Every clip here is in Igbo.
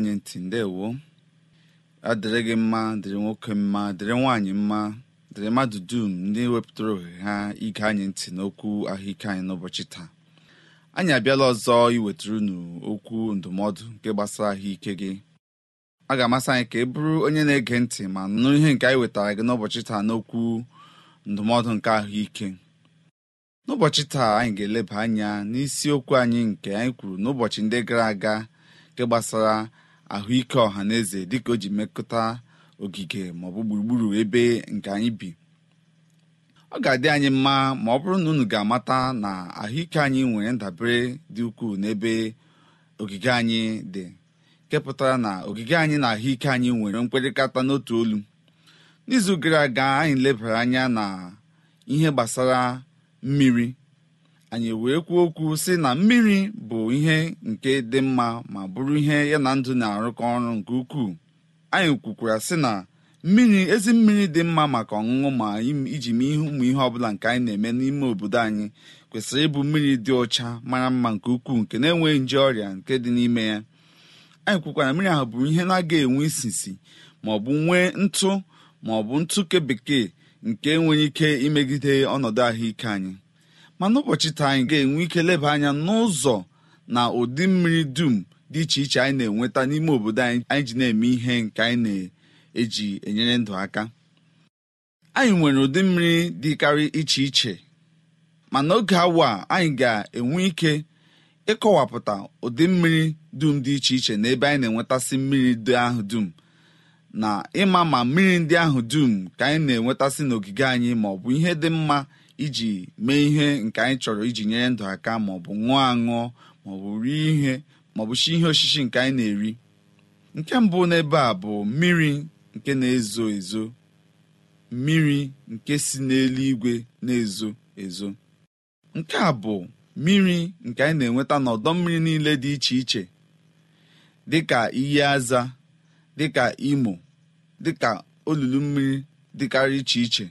anyị ntị ndewo adịrị gị mma dịrị nwoke mma dịrị nwaanyị mma dịrị mmadụ dum ndị wepụtara ohere ha ige anyị ntị n'okwu ahụike anyị n'ụbọchị taa anyị abịala ọzọ iwetara unu okwu ndụmọdụ nke gbasara ahụike gị a ga-amasị anyị ka ị bụrụ onye na-ege ntị ma nụ ihe nke anyị wetara gị n'ụbọchị taa n'okwu ndụmọdụ nke ahụike n'ụbọchị taa anyị ga-eleba anya n'isiokwu anyị nke anyị kwuru n'ụbọchị ndị gara aga nke gbasara ahụike ọha na eze dịka o ji mekọta ogige maọbụ gburugburu ebe nke anyị bi ọ ga-adị anyị mma ma ọ bụrụ na unu ga-amata na ahụike anyị nwere ndabere dị ukwuu n'ebe ogige anyị dị nke na ogige anyị na ahụike anyị nwere mkpịrịkata n'otu olu n'izu gara aga anyị lebara anya na ihe gbasara mmiri anyị wee kwuo okwu sị na mmiri bụ ihe nke dị mma ma bụrụ ihe ya na ndụ na-arụkọ ọrụ nke ukwuu anyị kwukwara sị na mmiri ezi mmiri dị mma maka ọṅụṅụ ma iji mee ihe ụmụ ihe ọbụla nke anyị na-eme n'ime obodo anyị kwesịrị ịbụ mmiri dị ọcha mara mma nke ukwuu nke na-enweghị nje ọrịa nke dị n'ime ya anyị kwukwara mmiri ahụ bụrụ ihe na-aga enwe isisi ma ọ bụ nwee ntụ ma ọ bụ ntụ nke bekee nke nwere ike imegide ọnọdụ ahụike anyị ma n'ụbọchị taa anyị ga-enwe ike leba anya n'ụzọ na ụdị mmiri dum dị iche iche anyị na-enweta n'ime obodo anyị ji na-eme ihe nke anyị na-eji enyere ndụ aka anyị nwere ụdị mmiri dịkarị iche iche ma n'oge awa anyị ga-enwe ike ịkọwapụta ụdị mmiri dum dị iche iche na ebe anyị na-enwetasị mmiri dị ahụ dum na ịma ma mmiri ndị ahụ dum ka anyị na-enwetasị n'ogige anyị ma ọ bụ ihe dị mma iji mee ihe nke anyị chọrọ iji nyere ndụ aka maọbụ ṅụọ aṅụọ maọbụ rie ihe maọbụ chi ihe osisi nke anyị na-eri nke mbụ n'ebe a bụ mmiri nke na-ezo ezo mmiri nke si n'eluigwe na-ezo ezo nke a bụ mmiri nke anyị na-enweta n'ọdọ mmiri niile dị iche iche dịka iyi aza dịka imo dịka olulu mmiri dịkarị iche iche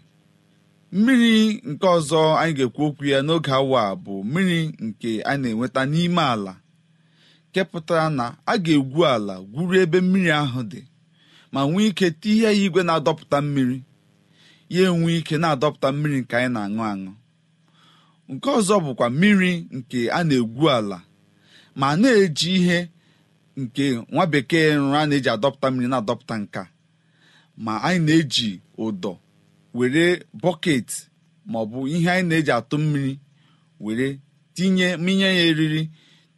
mmiri nke ọzọ anyị ga-ekwu okwu ya n'oge awa bụ mmiri nke a na-enweta n'ime ala kepụtara na a ga-egwu ala gwuru ebe mmiri ahụ dị ma nwee ike tihe ya igwe na-adọpụta mmiri ya enwe ike na-adọpụta mmiri nke anyị na-aṅụ aṅụ nke ọzọ bụkwa mmiri nke a na-egwu ala ma na-eji ihe nke nwa bekee nrụ na-eji adọpụta mmiri na-adọpụta nka ma anyị na-eji ụdọ were bọket maọbụ ihe anyị na-eji atụ mmiri were tinye minye ya eriri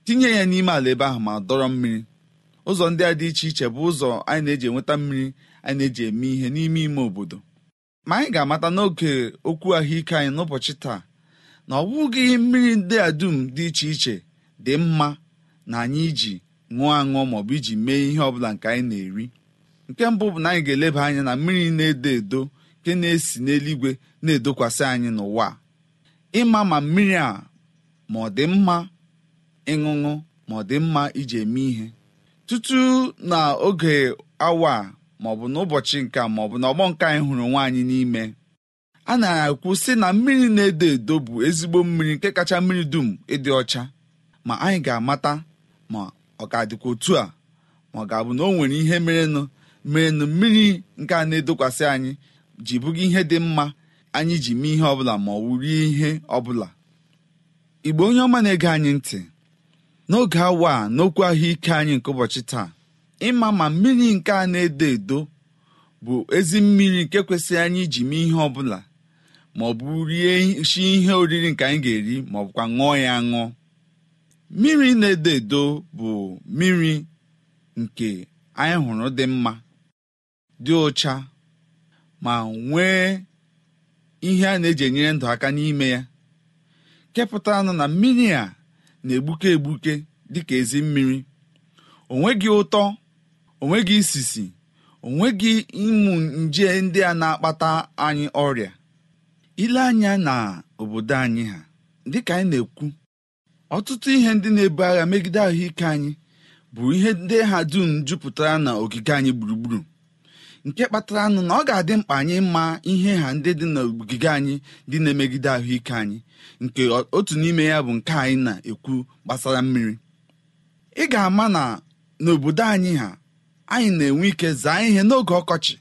tinye ya n'ime ala ebe ahụ ma dọrọ mmiri ụzọ ndị a dị iche iche bụ ụzọ anyị na-eji enweta mmiri anyị na-eji eme ihe n'ime ime obodo ma anyị ga-amata n'oge okwu ahụike anyị n'ụbọchị taa na ọ bụghị mmiri ndị a dum dị iche iche dị mma na anyị iji ṅụọ aṅụọ maọbụ iji mee ihe ọbụla nke anyị na-eri nke mbụ bụ na anyị ga-eleba anya na mmiri na-edo edo nke na-esi n'eluigwe na-edokwasị anyị n'ụwa ịma ma mmiri a ma ọ dị mma ịṅụṅụ ma ọ dị mma iji eme ihe tutu na oge awa maọbụ n'ụbọchị nke maọbụ na ọgbọ nke anyị hụrụ nwaanyị n'ime a na-ekwu sị na mmiri na-edo edo bụ ezigbo mmiri nke kacha mmiri dum ịdị ọcha ma anyị ga-amata ma ọ ga-adịkwa otu a ma ọ ga-abụ na o nwere ihe merenụ merenụ mmiri nke a na-edokwasị anyị ji bụga ihe dị mma anyị ji mee ihe ọbụla ma ọ wụ ihe ọbụla igbo onye ọma na-ege anyị ntị n'oge awa a n'okwu ahụike anyị nke ụbọchị taa ịma ma mmiri nke a na-edo edo bụ ezi mmiri nke kwesịrị anyị iji mee ihe ọbụla ma ọ bụ rie shi ihe oriri nke anyị ga-eri ma ọ bụkwa ṅụọ ya ṅụọ mmiri na-edo edo bụ mmiri nke anyị hụrụ dị mma dị ụcha ma nwee ihe a na-eji enyere ndụ aka n'ime ya kepụta anụ na mmiri a na-egbuke egbuke dịka ezi mmiri onweghị ụtọ onweghị isisi onweghị ịmụ nje ndị a na-akpata anyị ọrịa ile anya na obodo anyị ha dịka anyị na-ekwu ọtụtụ ihe ndị na-ebu agha megide ahụike anyị bụ ihe ndị ha dum jupụtara na ogige anyị gburugburu nke kpatara nụ na ọ ga-adị mkpa anyị mma ihe ha ndị dị n'ogige anyị dị na-emegide ahụike anyị nke otu n'ime ya bụ nke anyị na-ekwu gbasara mmiri ị ga-ama na n'obodo anyị ha anyị na-enwe ike zaa ihe n'oge ọkọchị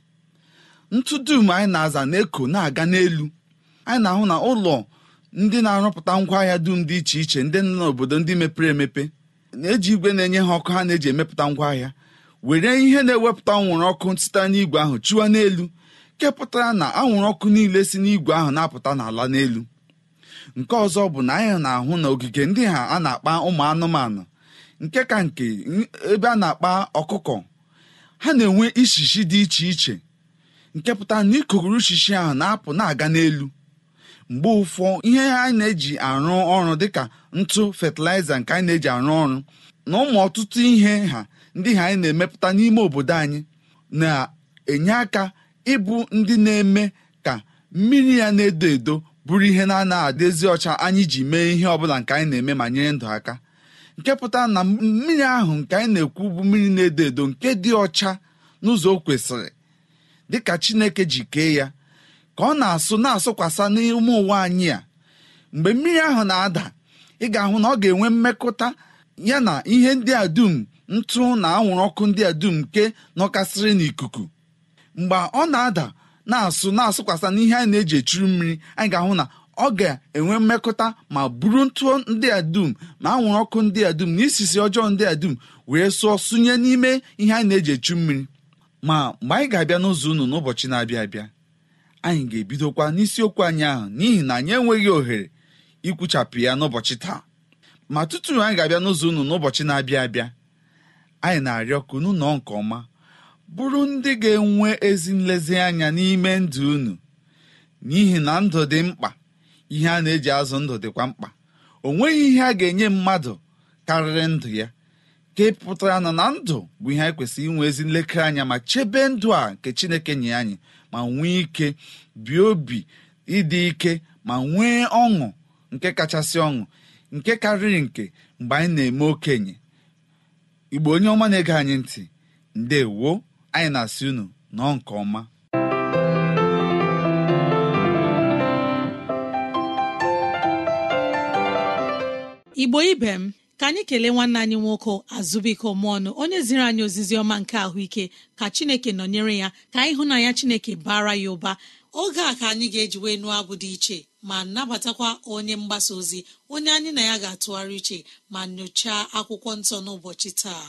ntụ dum anyị na-aza na-eko na-aga n'elu anyị na-ahụ na ụlọ ndị na-arụpụta ngwa ahịa dum dị iche iche ndị nọ n'obodo ndị mepere emepe na-eji igwe na-enye ha ọkụ ha na-eji emepụta ngwa ahịa were ihe na-ewepụta anwụrụ ọkụ site n'igwe ahụ chụwa n'elu kepụtara na anwụrụ ọkụ niile si n'igwe ahụ na-apụta n'ala n'elu nke ọzọ bụ na anyị na-ahụ na ogige ndị ha a na-akpa ụmụ anụmanụ nke ka nke ebe a na-akpa ọkụkọ ha na-enwe ishishi dị iche iche nke pụtara na ikuguru ishishi ahụ na-apụ na-aga n'elu mgbe ụfọ ihe anyị na-eji arụ ọrụ dịka ntụ fatịlaịza nke anyị na-eji arụ ọrụ na ụmụ ọtụtụ ihe ha ndị ha anyị na-emepụta n'ime obodo anyị na-enye aka ịbụ ndị na-eme ka mmiri ya na-edo edo bụrụ ihe na-anaghị adịzi ọcha anyị ji mee ihe ọbụla nke anyị na-eme ma nyere ndụ aka nke pụtara na mmiri ahụ nke anyị na-ekwu bụ mmiri na-edo edo nke dị ọcha n'ụzọ o dị dịka Chineke ji kee ya ka ọ na-asụ na-asụkwasa n'ime ụwa anyị a mgbe mmiri ahụ na-ada ị ga-ahụ na ọ ga-enwe mmekọta ya na ihe ndị a dum ntụ na anwụrụ ọkụ ndị a dum nke nọkasịrị n'ikuku mgbe ọ na-ada na-asụ na-asụkwasa n'ihe anyị na-eji echuru mmiri anyị ga-ahụ na ọ ga-enwe mmekọta ma buru ntụ ndị a dum ma anwụrụ ọkụ ndị a dum na isisi ọjọọ ndị a dum wee sụọ sụnye n'ime ihe anyị na-eji echu mmiri ma mgbe anyị ga-abịa n'ụzọ unu n'ụbọchị na-abịa abịa anyị ga-ebidokwa n'isiokwu anyị ahụ n'ihi na anyị enweghị ohere ikwuchapụ ya n'ụbọchị taa ma tutu anyị ga-abịa n'ụzọ unu n'ụbọchị na-abịa abịa anyị na-arịọ ka unu nke ọma bụrụ ndị ga-enwe ezi nlezianya n'ime ndụ unu n'ihi na ndụ dị mkpa ihe a na-eji azụ ndụ dịkwa mkpa o nweghị ihe a ga-enye mmadụ karịrị ndụ ya ka ị pụtara na na ndụ bụ ihe anyị kwesịrị inwe ezi nlekere anya ma chebe ndụ a nke Chineke nye anyị ma nwee ike bie obi ịdị ike ma nwee ọṅụ nke kachasị ọṅụ nke karịrị nke mgbe anyị na-eme okenye igbo onye ọma na-ege anyị ntị ndewo anyị na-asị unu nọọ nke ọma igbo ibe m ka anyị kelee nwanne anyị nwoke azụbiko ọnụ onye ziri anyị ozizi ọma nke ahụike ka chineke nọnyere ya ka na anyị hụ ya chineke bara ya ụba oge a ka anyị ga-eji wee nụọ abụ dị iche ma nnabatakwa onye mgbasa ozi onye anyị na ya ga-atụgharị uche ma nyochaa akwụkwọ nsọ n'ụbọchị taa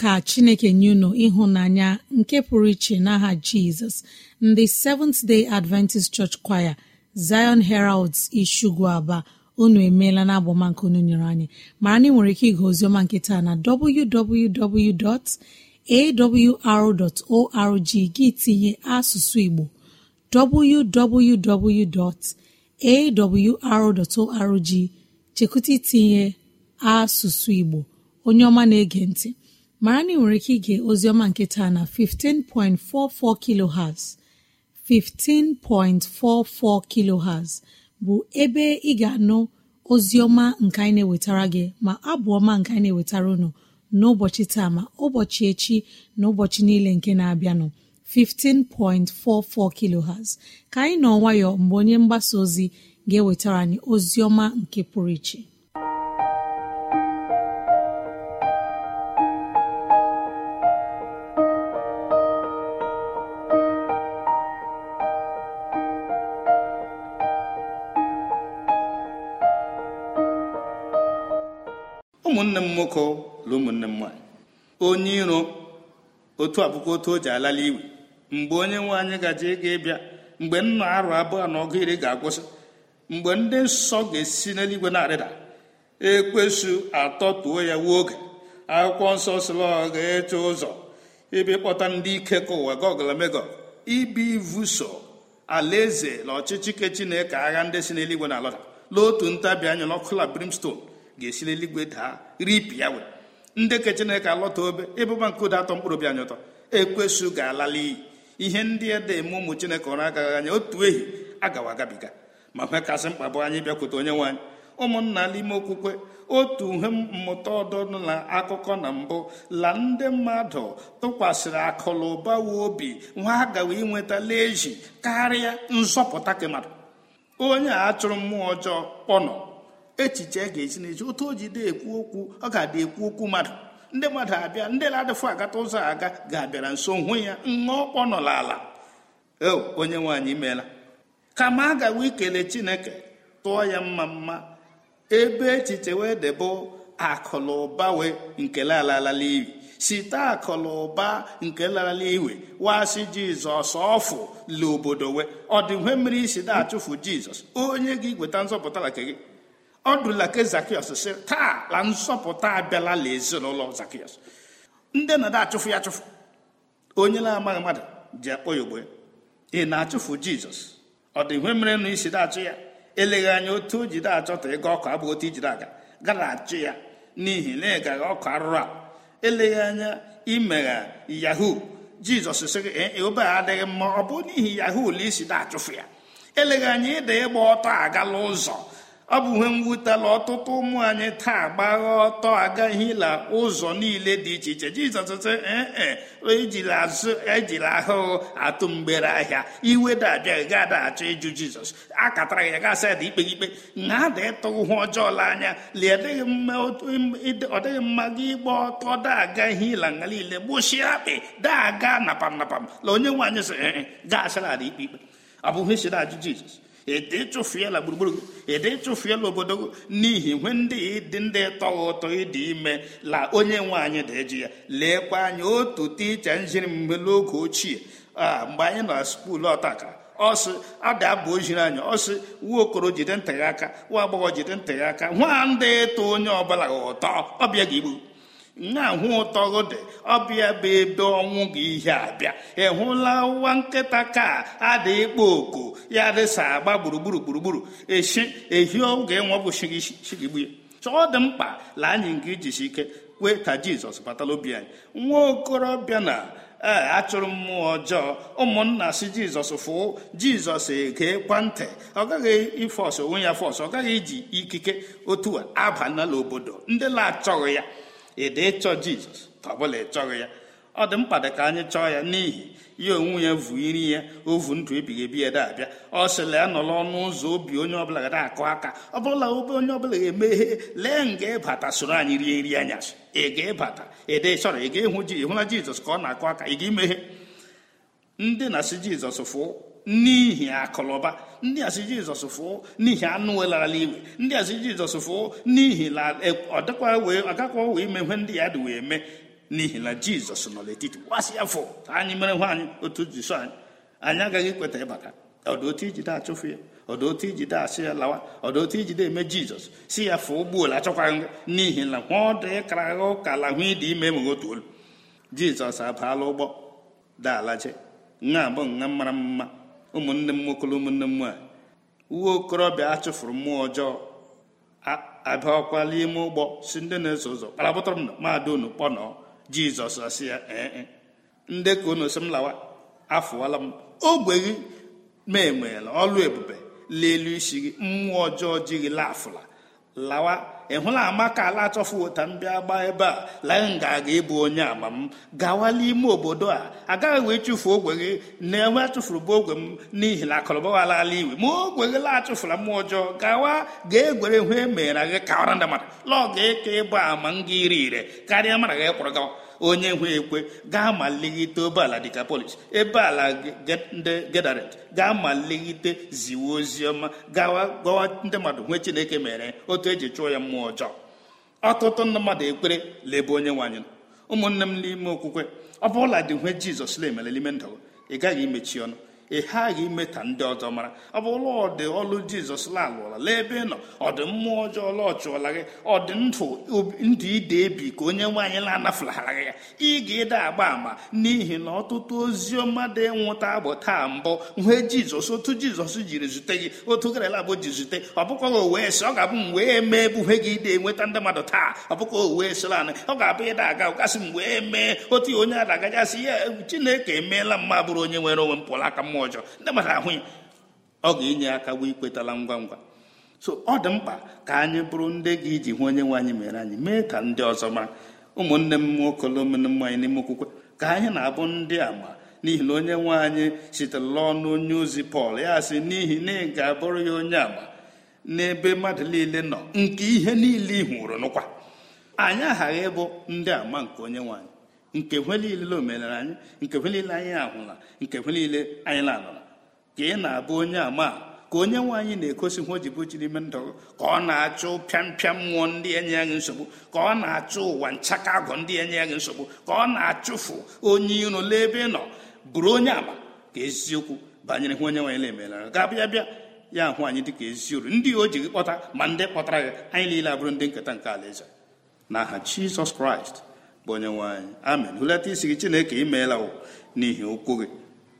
ka chineke nye unu ịhụnanya nke pụrụ iche n'aha jizọs ndị seventh day adventist church choir zion heralds ishugu aba unu emeela na agbọmanke unu nyere anyị mara na ị nwere ike ịga ozioma nke taa na www.awr.org gị tinye asụsụ igbo www.awr.org chekwụta itinye asụsụ igbo onye ọma na-ege ntị mara na ị nwere ike ige ozioma nke taa na 15.44 kilohertz 15.44 kilohertz bụ ebe ị ga-anụ ozioma nke anyị na-ewetara gị ma abụ ọma nke anyị na-ewetara unu n'ụbọchị taa ma ụbọchị echi na ụbọchị niile nke na-abịanụ 15.44 kilohertz ka anyị nọ nwayọọ mgbe onye mgbasa ozi ga-ewetara anyị nke pụrụ iche ụmụnne m nwoke na ụmụnne m nwaanyị onye iro otu abụkwa otu o ji alala iwe mgbe onye nwe anyị gaje ịga ịbịa mgbe nna arụ abụọ na ọgụ iri ga-agwụsị mgbe ndị nsọ ga-esi n'eluigwe na-arịda e atọ atọtuo ya wuo oge akwụkwọ nsọ sịla ọ ga-eche ụzọ ibi kpọta ndị ike ka ụwa goglamego ibi ivuso alaeze na ọchịchị ke chineke agha ndị si n'eluigwe na alọda n'otu ntabi anya n'ọkụla brimstone ga-esi n'eluigwe daa ripịa we ndị ke chineke alọta obe ịbụba nke ụda atọ mkpụrụ obi anyị ụtọ ekwesu ga-alala iyi ihe ndị ede dị eme ụmụ chineke ọrụ agaghị anya otu ehi agawa agabiga ma ihe kasị mkpa bụ anyị bịakwute onye anyị ụmụnna n'ime okwukwe otu uhe mmụta ọdụna na akụkọ na mbụ la ndị mmadụ tụkwasịrị akụlụ ụbawa obi nwa agawa inwetala ezi karịa nzọpụta kemmadụ onye a chụrụ mmụọ ọjọọ kpọnọ echiche ga-esi n'echi otu o jide ekwu okwu ọ ga-adị ekwu okwu mmadụ ndị mmadụ abịa ndị na-adịfụ agata ụzọ aga ga-abịara nso hụ ya ṅụọ kpọnọla ala onye nwaanyị meela kama a gawa ikele chineke tụọ ya mma mma ebe echiche wee debe akụlụba wee nke laralala iwi site akụlụba nke larala iwe wasị jizọs ọfụ la obodo wee ọ dị mmiri isi da achụfụ jizọs onye ga igweta nzọpụta nke gị ọ dụla ke zakiọs si taa la nsọpụta abịala na ezinụlọ zakios ndị na achụfụ ya achụfụ onye na-amaghị mmadụ ji akpọ ya ogbe ị na-achụfụ jizọs ọ dị ihe mere na isi da-achụ ya eleghị anya otu o jide achọta ịga ọkụ bụ otu ijide aga gara achụ ya n'ihi na ịgaghị ọkụ arụrụ a eleghị anya imegha yahoo jizọs sịrị gị e, e, obe adịghị mma ọ bụ n'ihi yahoo la isi da achụfụ ya eleghị anya ịda ịgba ọtọ agala ụzọ ọ bụ ihe mwutela ọtụtụ ụmụ anyị taa gbagha ọtọ la ụzọ niile dị iche iche jizọs sị ee ejila e azụ ejila ahụhụ atụ mgbere ahịa iwe dabịaghị gada achọ ịjụ jizọs akatara ya gasị ada ikpe ikpe na ada ịtụghị ọjọọ la anya ọ dịghị mma gị ịgba ọtọ ila nga niile gbụchie akpị daga napam napam la onye nwaanyị sị e, gasịra ada ikpe ikpe ọ bụghị isi ajụ jizọs edetụfuela gburugburu edetụfuela obodo n'ihi nwe ndị dị ndị tọghị ụtọ ịdị ime la onye nwe anyị dị eji ya leekwa anya otu ticha njiri mgbe n'oge ochie a mgbe anyị nọ na skuulu ọtaka ọsị ada abụ ojiri anyị ọsị nwa okoro jide ntị ya aka nwa agbọghọ jide ntị ya aka nwa ndị ịtụ onye ọbụla ụtọ ọbịa ga igbu na-ahụ ụtọ dị ọbịa bụ ebe ọnwụ gị ihe abịa ị hụla ụwa nkịta ka ada ịkpọ oku ya dịsa agba gburugburu gburugburu echi ehi oge nwabụchigbu ya chọọ dị mkpa laa anyị nke ijisi ike kwee ka jizọs batala obi anyị nwa okorobịa na ee achụrụ mmụọ ọjọọ ụmụnna si jizọs fụọ jizọs ege ntị ọ gaghị ifọs onwe ya fọs ọ gaghị iji ikike otu a aba n'ala obodo ndị na-achọghị ya dị ịchọ jizọs ọbụla chọghị ya ọ dị mkpa dị ka anyị chọọ ya n'ihi ya onwe ya vu iri ya ovu ndụ ebighị ebi ede abịa ọ sịla ya ọnụ ụzọ obi onye ọbụla ga na-akụ aka ọbụla obe onye ọbụla ga-emeghe lee nga ịbata soro anyị rie nri anya ị ga-ịbata ịdị chọrọ ị ga-ịhụ ji ịhụla jizọs ka ọ na-akụ aka ị ga-emeghe ndị na-asị jizọs fụ n'ihi akụlụba ndị asị jizọs fụọ n'ihi anụ welarala iwe ndị asị jizọs fụọ n'ihi na agakwa e, wee ime ihe ndị ya dị wee mee n'ihi na jizọs nọ n'etiti gbasị ya anyị mere nwa anyị otu jisọ anyị anyị agaghị ekweta ịbata ọdụotu ijide achụfụ ya ọdụotu ijide asị ya lawa ọdụotu ijide eme jizọs si ya fụọ ụgbọelu achọkwa ngụ n'ihi na nwa ọdụ ịkara ụka la hụ ịdị ime enweghị otu olu jizọs abaala ụgbọ daalaje nha abụ nha mara mma ụmụnne m nwoke ụmụnne m uwe okorobịa achụfuru mmụọ ọjọọ abịakwala ime ụgbọ si ndị na-eso ụzọ kparabụtara m na mmadụ unu kpọnọ jizọs asị ya ee e, ndị ka unu si m lawa afụwala m ogbe gị ma enweela ọlụ ebube lelu isi gị mmụọ ọjọọ ji gị laafụla lawa ị hụla amaka ala achọfuo ta m bịa gbaa ebe a laị nga aga ịbụ onye ama m gawa n'ime obodo a agaghị wee chụfuo ogwe gị na-enwe achụfuru bụ ogwe m n'ihi na akọlọbawala ala iwe ma ogwe gị laachụfula mmụọ ọjọọ gawa ga egwere hụ emeghara gị ka ọra ndị mmadụ lọọ ga eke ịbụ ama m gị iri ire karịa mara gị kwụrụ gawa onye nwe ekwe gaa ma obeala dịka polish ebe ala ndị gedaret gaa ma leghite ziwe oziọma gawa gwawa ndị mmadụ nwee chineke mere otu eji chụọ ya mmụọ ọjọọ ọtụtụ ndị mmadụ ekpere lebe onye nwaanyị ụmụnne m n'ime okwukwe ọ bụla dị nwee jizọs na-emelelime ndụ ị gaghị imechi ọnụ ị ghaghị imeta ndị ọzọ mara ọ bụ ọdị ọlụ jizọs lalụọla lee ebe ị nọ dị mmụọ ọjọọ ọla ọchụọla gị dị ndụ ndụ ide ebi ka onye nwaanyị na-anafụlagha ya ị ga-ede agba ama n'ihi na ọtụtụ ozi ọma dị nwụta bụ taa mbụ nwee jizọs otu jizọs jiri zute gị otu garala bụ ji zute ọ bụkwaghị wee si ọ ga-abụ m wee mee ebuhe gị ide enweta ndị mmadụ taa ọ bụkwa wee sịla anị ọ ga-abụ ịda aga ụkasị m wee mee otu onye a agajasị ya chineke emeela mma bụrụ onye nwere onwe m aka mmụọ ọjọọ ndị mmadụ ahụ ọ ga-enye aka bụ ikwetala ngwa ngwa so ọ dị mkpa ka anyị bụrụ ndị gị iji hụ onye nwe anyị mere anyị mee ka ndị ọzọ mara ụmụnne m nwoke lomnmụ anyị n'ime okwukwe ka anyị na-abụ ndị ama n'ihi na onye nwe anyị sitere ọnụ onye ozi pọl ya sị n'ihi na ị ga-abụrụ ya onye ama n'ebe mmadụ niile nọ nke ihe niile ị hụrụ n'ụkwa anyị aghaghị ịbụ ndị ama nke onye nwaanyị. nke kwe niile omenala anyị nke kwe niile anyị ahụla nke kwe niile anyị lanara ka ị na-abụ onye ama ka onye nwe anyị na-egosi ihe o ji bụ ime ndụ ka ọ na-achụ pịampịa mmụọ ndị enye ya gị nsogbu ka ọ na-achụ ụwa nchaka agụ ndị enye ya gị nsogbu ka ọ na-achụfu onye iro lee ebe ị nọ bụrụ onye ama ka eziokwu banyere hụ onye nwe anyị na-emelara ga-abịa bịa ya ahụ anyị ka ezi uru ndị o ji gị kpọta ma ndị kpọtara gị anyị niile abụrụ ndị nketa nke alaeze na aha Jizọs Kraịst onyenwe anyị amen hulata isi gị chineke imeela n'ihi okwu gị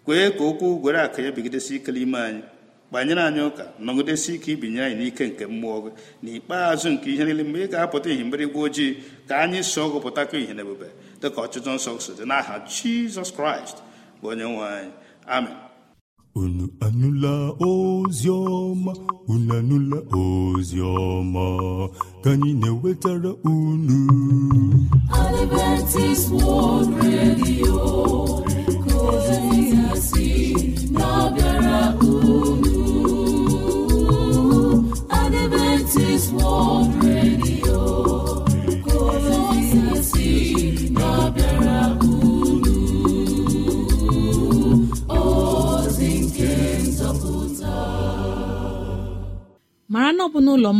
kwee ka okwu gwere aka ya bigidesi ike n'ime anyị gbanyere anyị ụka nọgidesi ike ibinye anyị n'ike nke mmụọ gị n'ikpeazụ nke ihe niile mgbe ị ga-apụta ihe mgbịrịgwa ojii ka anyị so gụpụtakọ ihe na-ebube dị dịka ọchịchọ nsọ so dị n'aha jizọs kraịst bụ onyenwe anyị amen unu anụla ozi ọma unu anụla ozi ọma ka anyị na-ewetara unu Adventist World Radio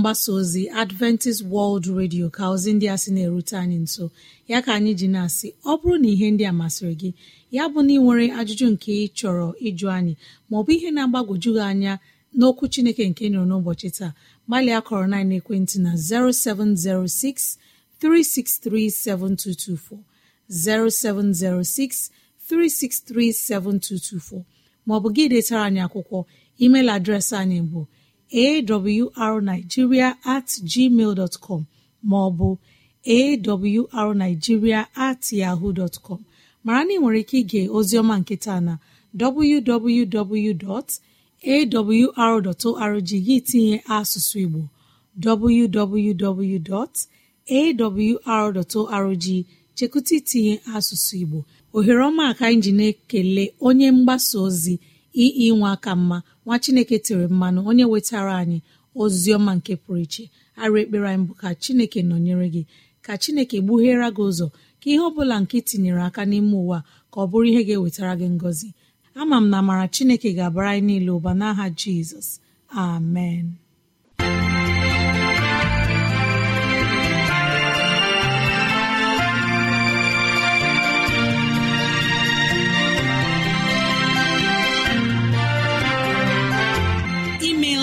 mgbasa ozi adventist world radio ka ozi ndị a sị na-erute anyị nso ya ka anyị ji na-asị ọ bụrụ na ihe ndị a masịrị gị ya bụ na ị nwere ajụjụ nke ị chọrọ ịjụ anyị maọbụ ihe na-agbagwoju gị anya n'okwu chineke nke nọrọ n'ụbọchị taa gbalịa kọrọ na ekwentị na 0706 3637224 0706 3637224 maọbụ gị detara anyị akwụkwọ email adreesị anyị bụ arigiria at gmail dot com maọbụ arigiria at yahoo dot com mara na ị nwere ike ige ozioma nketa na www.awr.org gị tinye asụsụ Igbo www.awr.org chekụta itinye asụsụ Igbo ohere ọma ka ekele onye mgbasa ozi ii nwa aka mma nwa chineke tere mmanụ onye wetara anyị ozi ọma nke pụrụ iche arụ ekpere anyị ka chineke nọnyere gị ka chineke gbughere gị ụzọ ka ihe ọ nke tinyere aka n'ime ụwa ka ọ bụrụ ihe ga-ewetara gị ngọzi ama m na amara chineke ga-abara anyị niile ụba n'aha jizọs amen